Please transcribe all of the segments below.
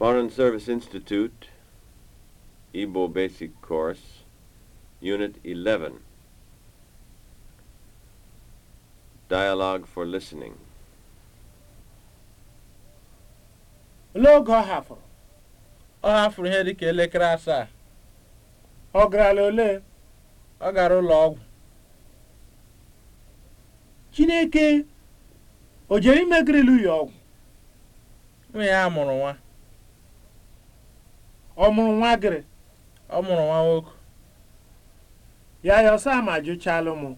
Foreign Service Institute, Igbo Basic Course, Unit 11. Dialogue for Listening. N'oge ọ hafụrụ, ọ hafụrụ ihe dịka elekere asaa. Ọ garala ole? Ọ gara ụlọ ọgwụ. Chineke o jere imegirili ya ọgwụ? Nwa ya mụrụ nwa. ọ mụrụ nwa gịrị ọ mụrụ nwa nwoke ya ya ọsọ ama jụchalụ mụ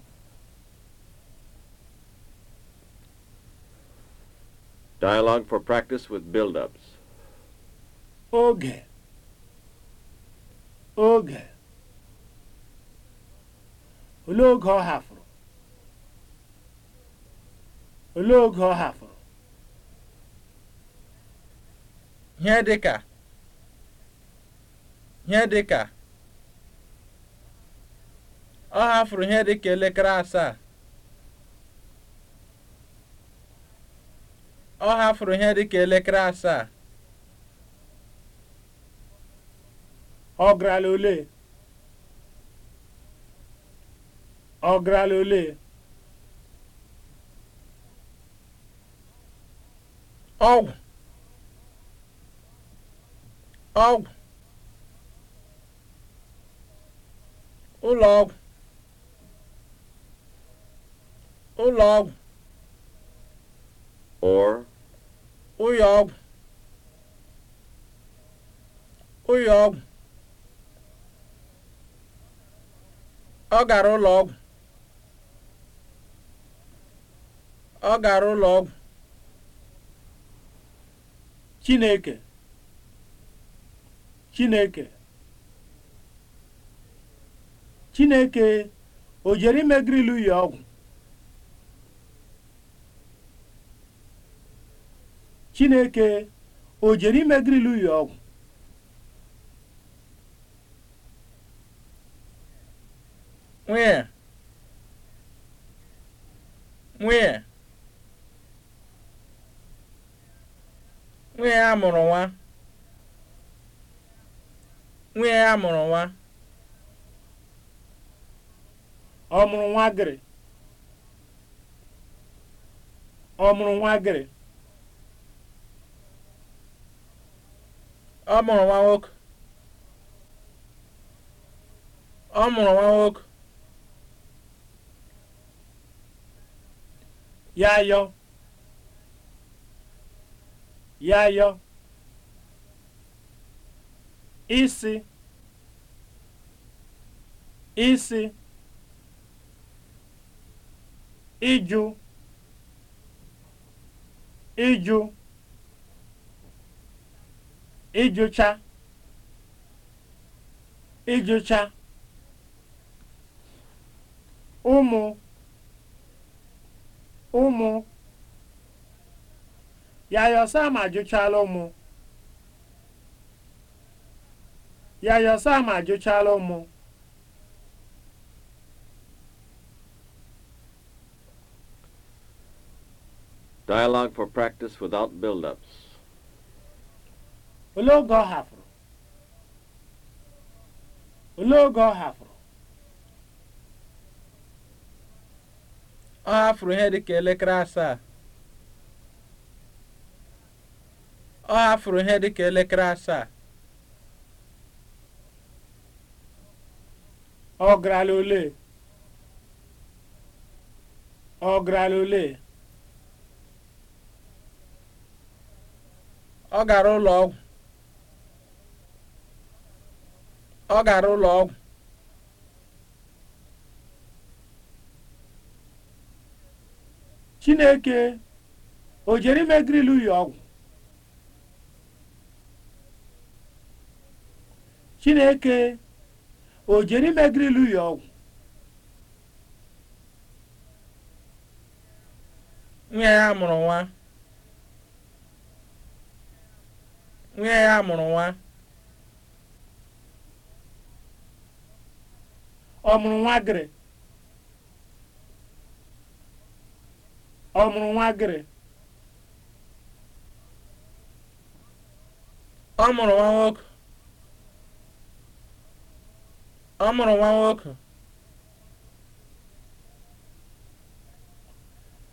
Dialogue for practice with build-ups. Oge. Oge. Olee oge ọ hafụrụ? Olee oge ọ hafụrụ? Ihe dị ka ihe ka? ọ hafụrụ ihe ka elekere asaa ọ hafụrụ ihe ka elekere asaa ọ garala ole ọ garala ole ọgwụ ọgwụ Ụlọ ụlọọgwụ ụlọọgwụ or ụyọọgwụ ọgwụ, ọ gara ọgwụ, ọ gara ọgwụ, Chineke Chineke chineke o jere ime grilu ya ọgwụ chineke o jere ime grilu ya ọgwụ nwee nwee nwee a mụrụ nwa nwee a mụrụ nwa ọ mụrụ nwa gịrị ọ mụrụ nwa gịrị ọ mụrụ nwa nwoke ọ mụrụ nwa nwoke ya yọ ya yọ isi isi ịjụ ịjụ ịjụcha ịjụcha ụmụ ụmụ Yayo Sam ajụchala ụmụ Yayo Sam ajụchala ụmụ Dialogue for practice without build-ups. Olee oge ọ hafụrụ? Olee oge ọ hafụrụ? Ọ ah, hafụrụ ihe dịka elekere asaa. Ah, ọ furu ihe dịka elekere asaa. Ọ oh, garala ole? Ọ oh, garala ole? Ọ gara ụlọ ọgwụ. Ọ gara ụlọ ọgwụ. Chineke o jere ime grilu ya ọgwụ? Chineke o jere ime grilu ya ọgwụ? Nwa ya mụrụ nwa. nwunye ya mụrụ nwa ọ mụrụ nwa gịrị ọ mụrụ nwa gịrị ọ mụrụ nwa nwoke ọ mụrụ nwa nwoke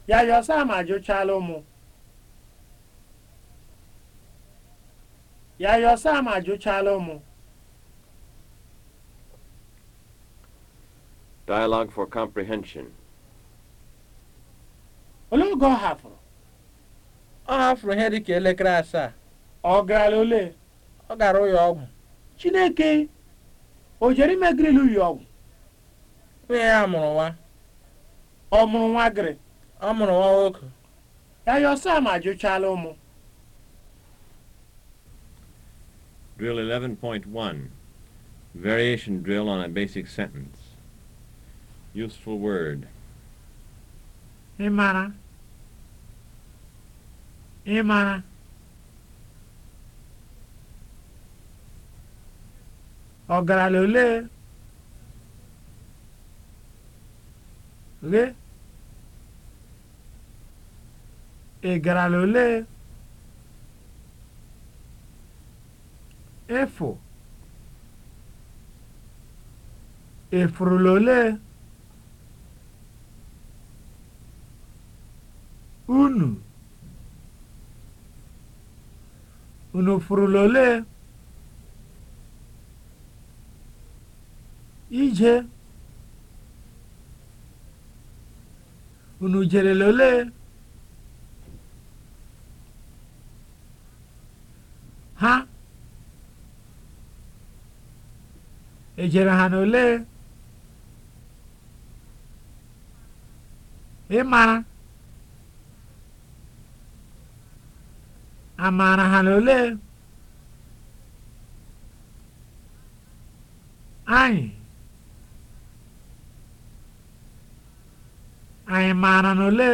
ya yọsa ma jụchala ụmụ Yayo Sam ajụchala ụmụ. Dialogue for comprehension. Olee oge ọ hafụrụ? Ọ hafụrụ ihe dị ka elekere asaa. Ọ gara ole? Ọ gara ụyọ ọgwụ. Chineke o jere imegirili ụlọ ọgwụ? Nwunye ya mụrụ nwa. Ọ mụrụ nwa gịrị? Ọ mụrụ nwa nwoke. Yayo Sam ajụchala ụmụ. Drill 11.1 Variation drill on a basic sentence. Useful word. Imara. ogara Ọgaranya ole? Ole? Ịgaranya ole? efu efurulole unu unu lole ije unu jere lole ha ejere ha n'ole ịmara amara ha ole anyị anyị maara ole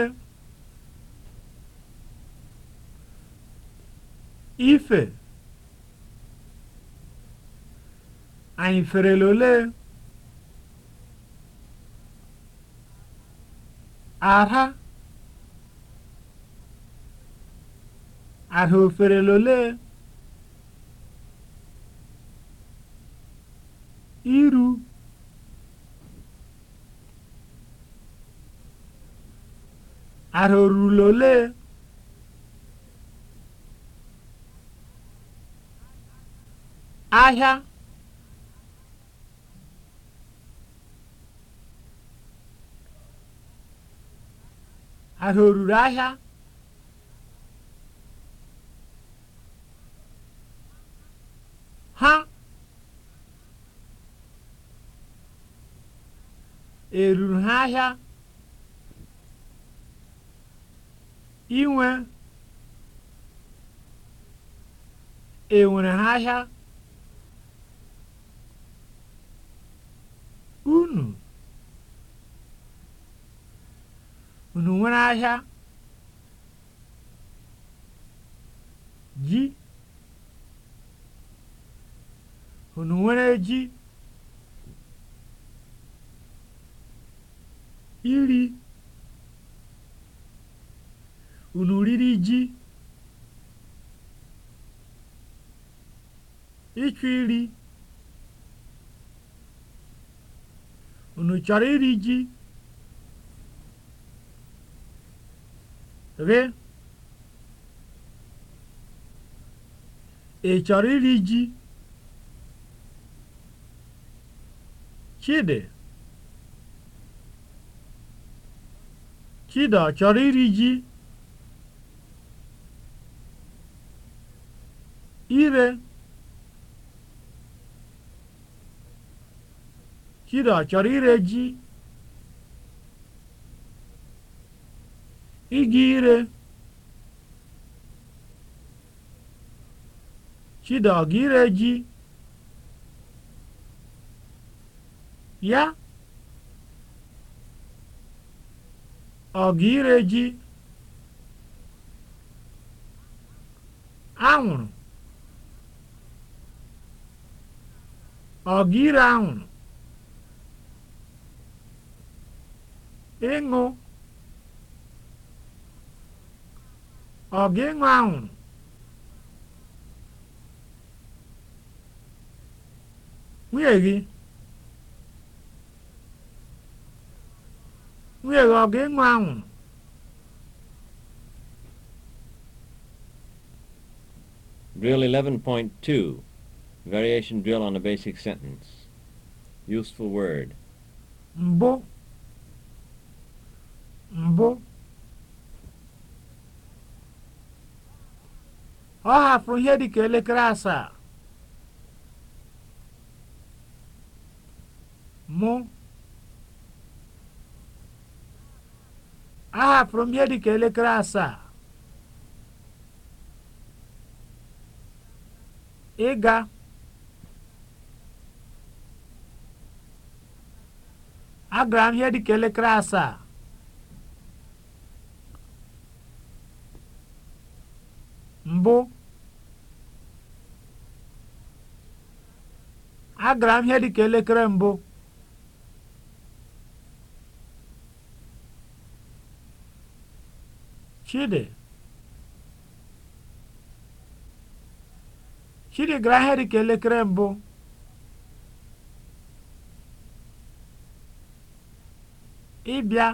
ife Anyị ferela olee? Ara? Ara oferela olee? Iru? Ara orula ole Ahịa? Ahịa o ahịa? Ha eruru ha e ahịa? Inwe enwere ha ahịa? nwere ahịa ji? Unu nwere ji? Iri? Unu riri ji? Ịchụ iri? Unu chọrọ iri ji? Ghị, ị chọrọ iri ji? Chidi Chidi a chọrọ iri ji? Ire Chidi a chọrọ ire ji? Ịga ire. Chidi ọ gị ire ji? Ya? Ọ gị ire ji? Anwụrụ. Ọ gị ire anwụrụ? Ịṅụ. Ọ gị nwa nwụrụ? Nwunye gị? Nwunye Drill 11.2 Variation drill on a basic sentence. Useful word. Mbụ. Mbụ. ọ hapụrụ ihe dịka elekere asaa mụ ahapụrụ m ihe dịka elekere asaa ịga agara m ihe dịka elekere asaa mbụ agara m ihe ka elekere mbụ chidi chidi gara ihe ka elekere mbụ ịbịa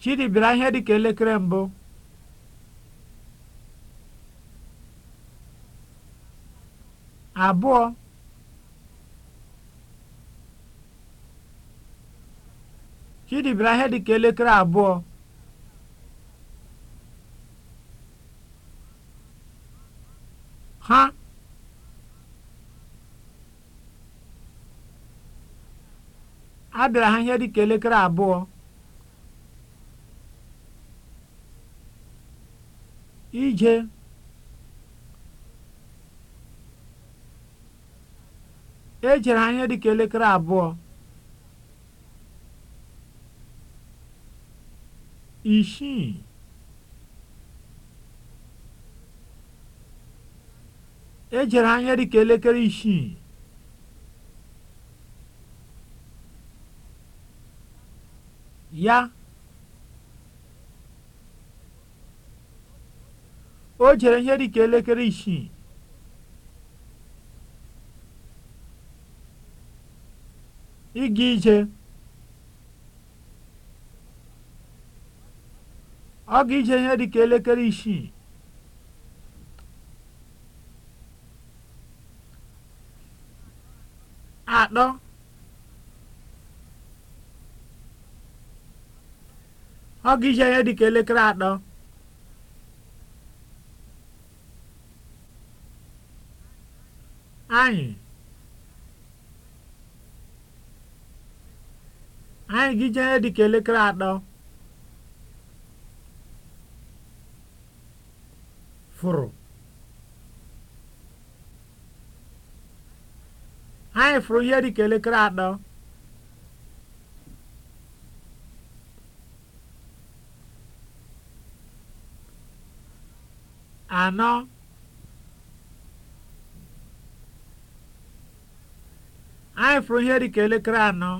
chidi bịara ihe ka elekere mbụ abụọ Chidi bịara ihe dị ka elekere abụọ ha abịara ha ihe dị ka elekere abụọ ije ejere anya ka elekere abụọ isii ejere anya ka elekere isii ya o jere ihe ka elekere isii ịga ije ọ ga ije ihe dịka elekere isii atọ ọ ga ije ihe dịka elekere atọ anyị anyị gị ije dị ka elekere atọ fụrụ anyị fụrụ ihe dị ka elekere atọ anọ anyị fụrụ ihe dị ka elekere anọ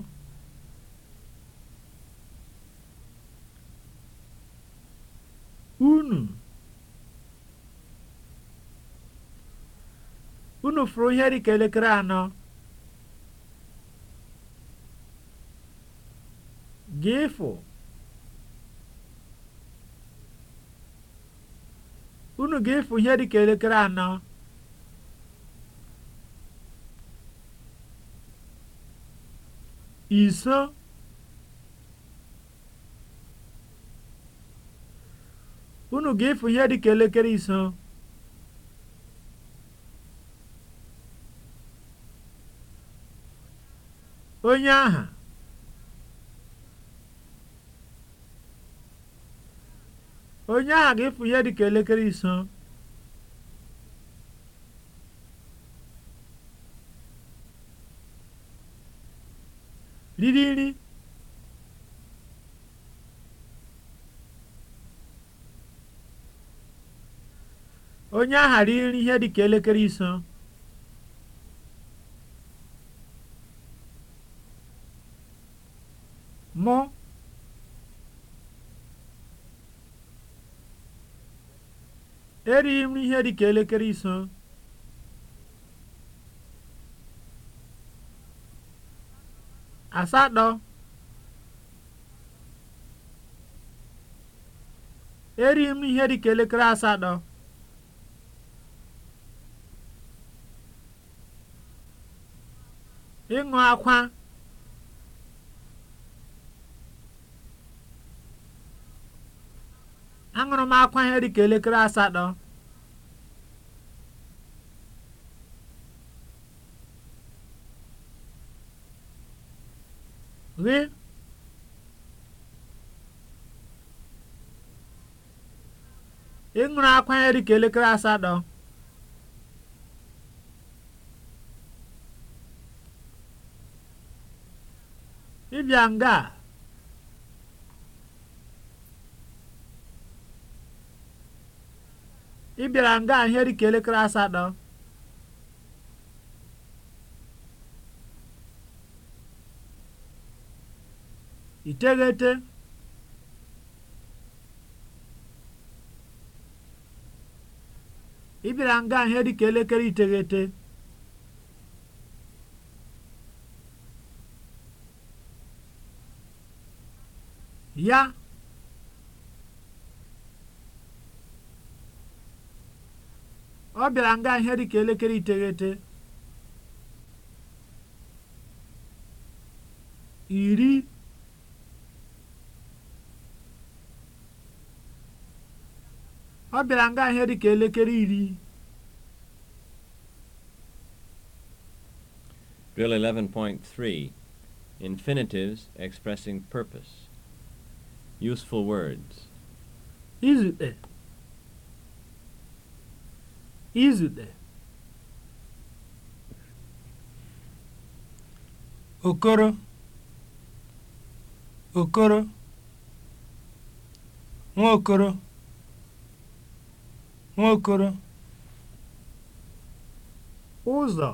hafụrụ unu ga-efu ihe dịka elekere anọ iso elekere iso onye aha onye aha ga-efu ihe dị ka elekere iso riri nri ihe dị ka elekere iso erighị m ihe dị ka elekere iso asatọ erighị m ihe dị ka elekere asatọ ịṅụ akwa aṅụrụ m akwa ihe dịka elekere asatọ gị ị ṅụrụ akwa ihe dịka elekere asatọ ịbịa nga a ị bịara nga a ihe ka elekere asatọ iteghete ị bịara nga ihe ka elekere iteghete ya ọ bịara nga ihe dịka elekere iteghete iri ọ bịara nga ihe dịka elekere iri Drill 11.3 Infinitives expressing purpose. Useful words. Izute izute okoro okoro nwaokoro nwaokoro ụzọ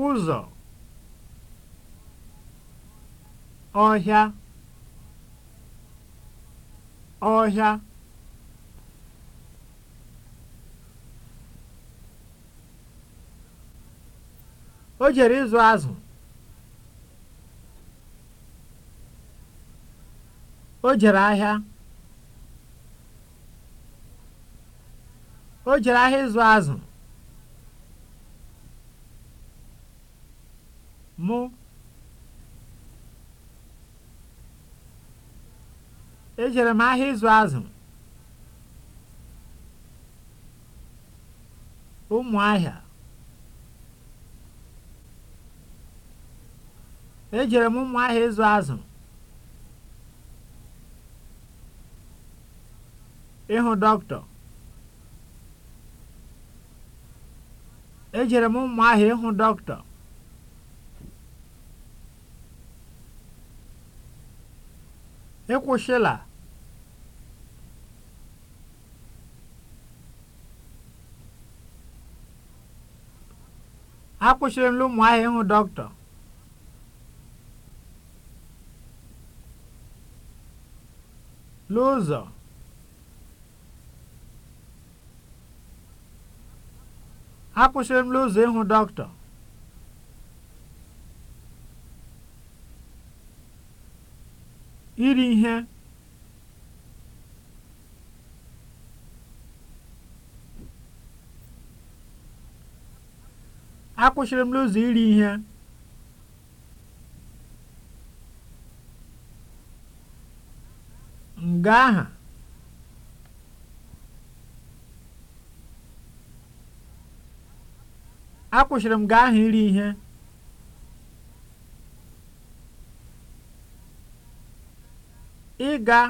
ụzọ ọhịa ọhịa O jere ịzụ azụ. O jere ahịa. O jere ahịa ịzụ azụ. Mụ. Ejere m ahịa ịzụ azụ. Ụmụ ahịa. Ejere m Ụmụahịa ịzụ azụ ịhụ dọkịta. Ejere m Ụmụahịa ịhụ dọkịta. Ịkwụsịla. E Akwụsịrị m Ụmụahịa ịhụ dọkịta. L'ụzọ akwụsịrị m n'ụzọ ịhụ dọkịta iri ihe akwụsịrị m n'ụzọ iri ihe obodo aha akwụsịrị m gị iri e ihe ịga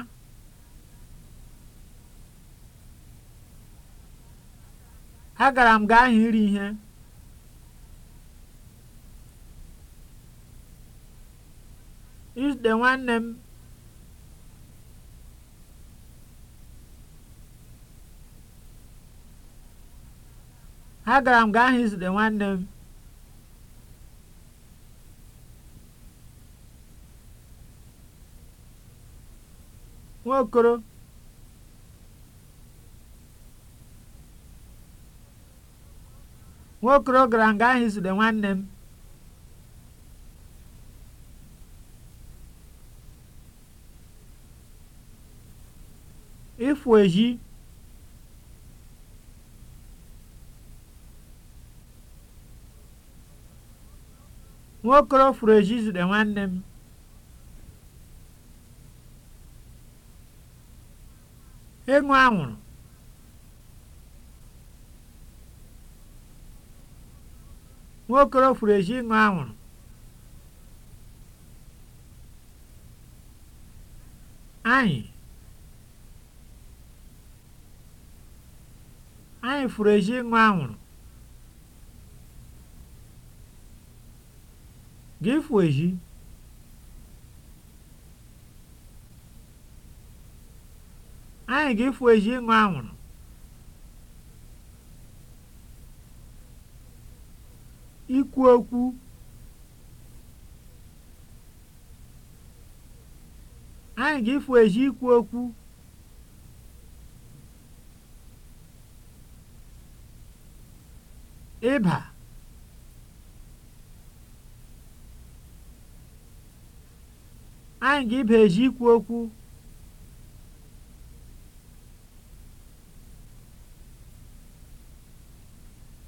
agara m gị e iri ihe izute nwanne m agara m gaa hụ izute nwanne m nwokoro nwaokolo gara m gaa hụ izute nwanne m ifu ezi. nwaokolo furu ezi izute nwanne m ịṅụ anwụrụ furu ịṅụ anwụrụ anyị anyị furu eju ịṅụ anwụrụ Ga-efu ohi anyị ga-efu ohi ịṅụ anwụrụ ikwu okwu anyị ga-efu ikwu okwu ịba Anyị ga-ibeji ikwu okwu.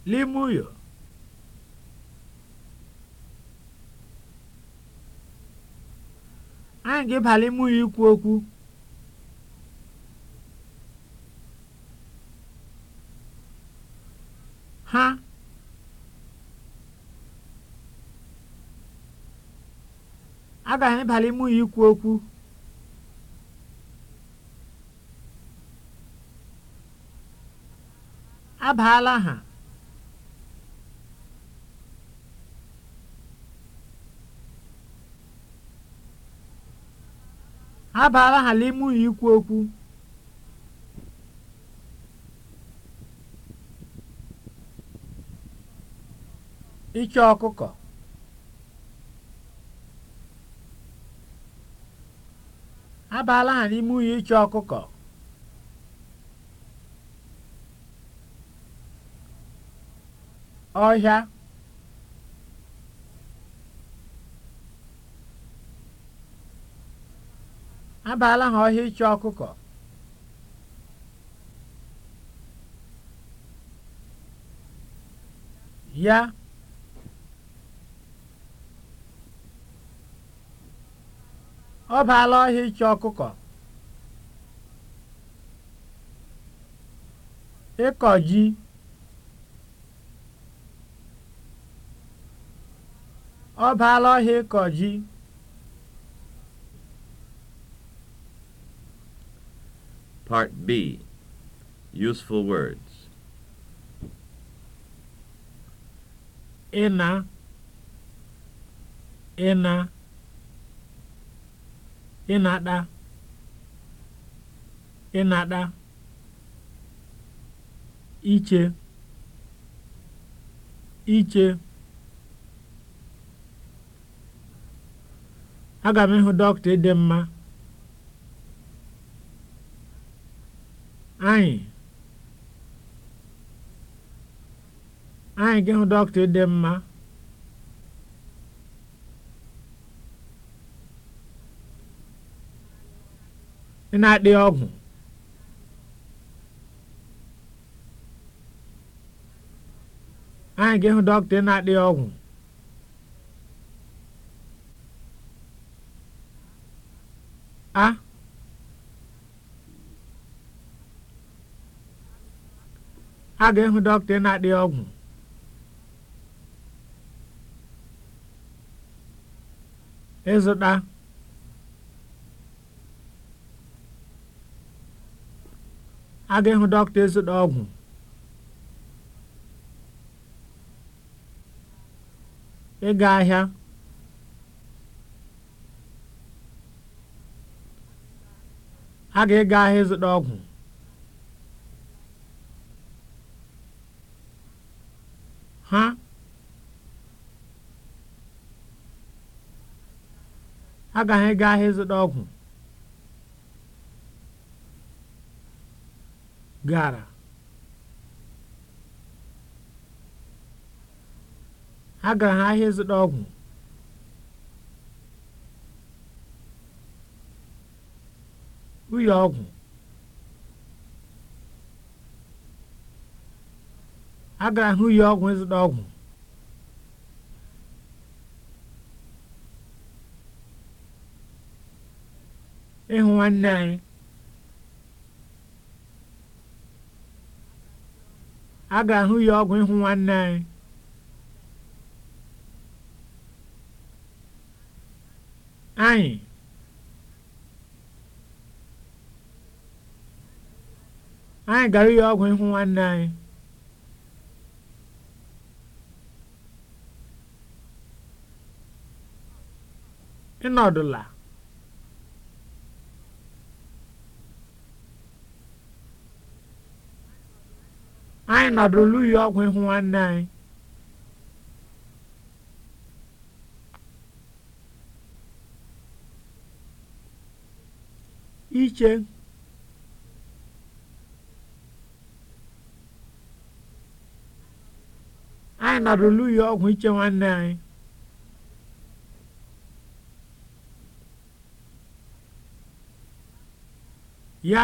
Limuyo anyị ga-ịba limuyo ikwu okwu. Ha agaghị abalị mụ ya ikwu okwu abaala ha abaala ha n'ime ya ikwu okwu ịchọ ọkụkọ abaala ha n'ime unyi ịchụ ọkụkọ ọhịa abaala ha ọhịa ịchọ ọkụkọ ya ọ baala ọhịa ịchọ ọkụkọ ịkọ ji ọ baala ọhịa ịkọ ji Part B Useful words ịna ịna ịnaɗa ịnaɗa iche iche aga m ịhụ dọkịta ịdị mma anyị anyị gị hụ dọkịta ịdị mma na-adị ọgwụ anyị ga ehu dọkịta na-adị ọgwụ a a ga-ịhụ dọkịta na-adị ọgwụ ịzụta aga ịhụ dọkịta ịzụta ọgwụ ịga ahịa a ga-ịga ahịa ịzụta ọgwụ ha agaghị ịga ahịa ịzụta ọgwụ gara agara ahịa ịzụta ọgwụ ụyọ ọgwụ agara ha ụyọ ọgwụ ịzụta ọgwụ ịhụ nwanne anyị a ga-ahụ ya ọgwụ ịhụ nwanne anyị anyị anyị gara ya ọgwụ ịhụ nwanne anyị ịnọdụla anyị nọdụ luyi ọgwụ ihu nwanne anyị iche anyị nọdụ luyi ọgwụ iche nwanne anyị ya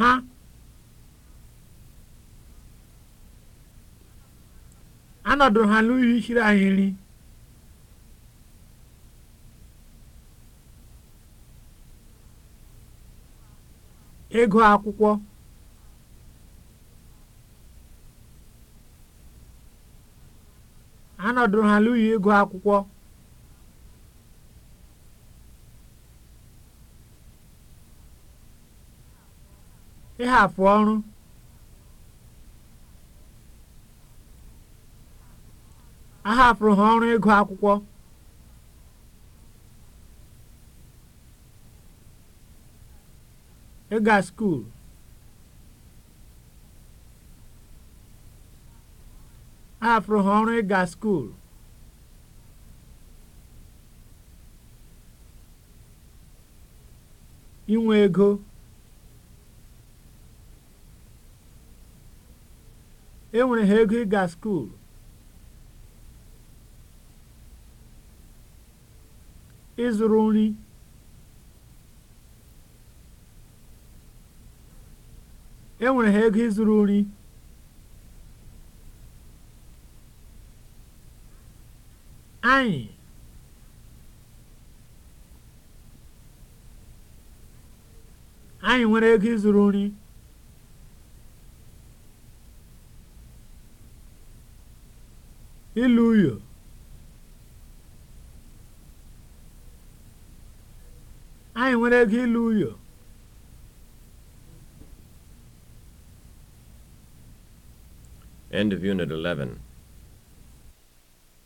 ha anọdụrụ ha n'ụlọ ichiri ahịrị ego akwụkwọ anọdụrụ ha n'ụlọ ego akwụkwọ ịhapụ ọrụ ahapụrụ ha ọrụ ịgụ akwụkwọ ịga skuul ahapụrụ ha ọrụ ịga skuul inwe ego enwere ha ego ịga skuulu ịzụrụ nri enwere ha ego ịzụrụ nri anyị anyị nwere ego ịzụrụ nri ilu anyị nwere ego ilu uyo End of Unit 11